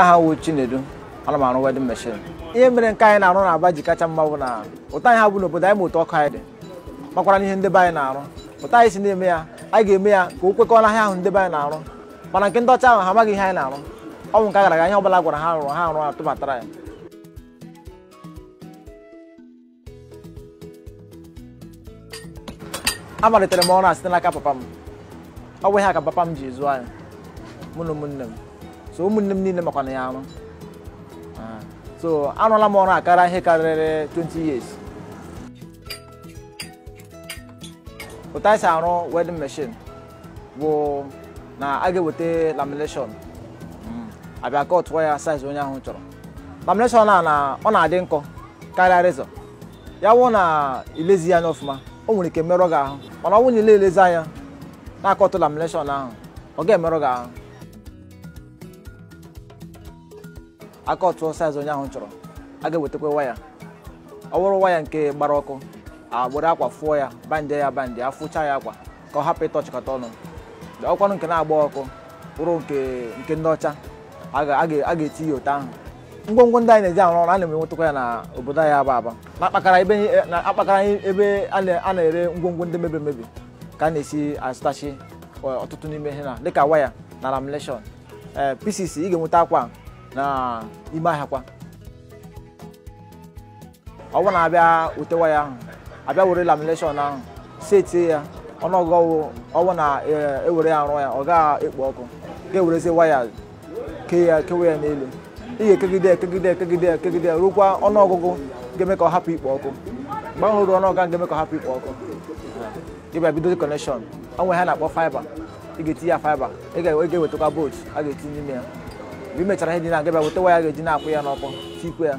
aha wụ Chinedu ana m arụ wedin meshin ihe mere nke anyị na-arụ na aba ji kacha mma bụ na ụtọ anyị ha bụ n'obodo anyị ma otu ọkụ anyị dị makwara n'ihe ndebe anyị na-arụ ụtọ anyị si na-eme ya anyị ga-eme ya ka o kwekọọ n'ahịa ahụ ndebe anyị na-arụ mana nke ndị ọcha ahụ ha amaghị ihe anyị na-arụ ọnwụ nke gara aga ihe ọbụla gwara ha rụrụ ha arụ atụbatara ya amalitere m ọrụ a site n'aka papa m ọ bụ ihe a ka papa m ji zụọ anyị mụ na ụmụnne m so ụmụnne m niile makwana ya ama ah. so arụọla m ọrụ akara ihe karịrị 20 years otu arụ wedding machine bụ na a ga-eweta lamination hmm. abịa kọtụọ ya size onye ahụ chọrọ lamination a na ọ na-adị nkọ karịa ya wụ na ilezi anya ọfụma o nwere ike merọ gị ahụ mana ọ wụ na elezi anya na-akọtụ lamination ahụ ọ ga-emerụ gị ahụ aka ọtụọ saịz onye ahụ chọrọ a ga-ewetakwa waya ọ bụrụ waya nke gbara ọkụ agbụrụ akwa fụọ ya bandị ya bandị afụcha ya akwa ka ọ hapụ ịtọchịkọta ọnụ ọkwanụ nke na-agba ọkụ bụrụ nke ndị ọcha a ga-eti ote ahụ ngwongwo ndị anyị na-eji arụ ọrụ a na-enwetakwa ya na obodo anyị aba aba na-akpakara ebe a na-ere ngwongwo ndị mebiri emebi ka a na-esi azụtachi e, ọtụtụ n'ime ihe na dịka waya na lamleshọn ee pcc ị ga-enweta akwa na ime ahịa kwa ọ bụrụ na abịa ute waya ahụ abịa were lamination ahụ setie ya ọ ọwụ na ewere ya rụọ ya ọ gaa ekpo ọkụ ga-ewerezi waya kee ya kewe ya n'elu ị ga-ekegide ekegide ekegide ekegide rukwa ọnụọgụgụ ga-eme ka ọ hapụ ikpo ọkụ mgbe ahụ ruo ọnụọgụ ga-eme ka ọ hapụ ikpo ọkụ ịbịa bido ọ nwe ha na-akpọ faiba ị ga-etinye ya faiba ị ga-ewetakwa bolt a ga-etinye n'ime ya imechara ihe dị na gaba weta waya ga-eji na-akwụ ya n'ọkụ tikwe ya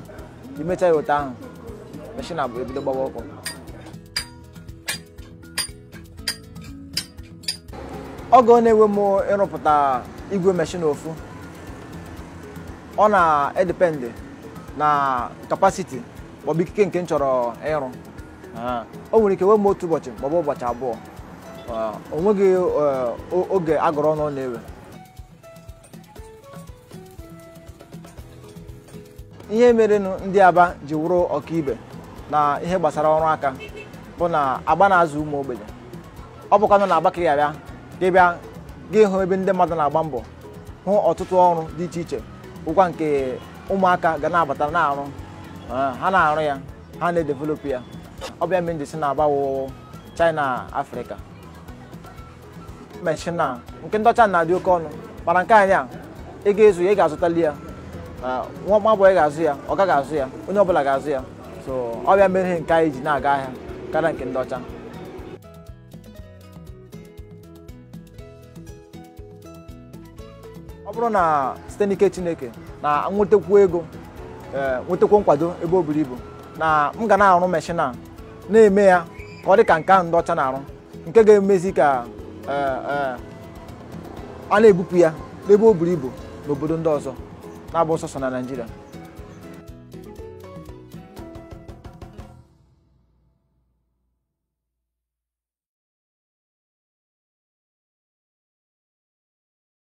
imecha ya ụta ahụ meshin abụ ebido gbawa ọkụ oge ọ na enwe m ịrụpụta igwe meshin ofu ọ na-edependị na kapasiti maọbụ ikike nke m chọrọ ịrụ o nwere ike wee m otu ụbọchị maọbụ ụbọchị abụọ onweghị eh, oge agụrụ ọnụ na-ewe ihe merenụ ndị aba ji wụrụ ọkaibe na ihe gbasara ọrụ aka bụ na agba na-azụ ụmụ ogbenye ọ bụkwa nọ na Abakaliki abịa gị bịa gị hụ ebe ndị mmadụ na-agba mbọ hụ ọtụtụ ọrụ dị iche iche bụkwa nke ụmụaka ga na-abata na-arụ ha na-arụ ya ha na-edevelopụ ya ọ bịa mere njisi na-agbawo China Afrịka meshina nke ndị ọcha na-adị oke ọnụ mana nke anyị a ị ga-ezu ya ị ga-azụtali ya Ah, nwa ga-azụ ya ọ gaghị azụ ya onye ọbụla ga-azụ ya so ọ mere ihe nke anyị ji na-aga ahịa karịa nke ndị ọcha ọ bụrụ na site n'ike chineke na nwetakwu ego eh, nwetakwu nkwado ebe o buru ibu na m ga na-arụ meshin a na-eme ya ka ọ dị ka nke ahụ ndị ọcha na-arụ nke ga-emezi ka eh, eh, a na-ebupụ ya n'ebe o buru ibu n'obodo ndị ọzọ na Bolsa não Nigeria.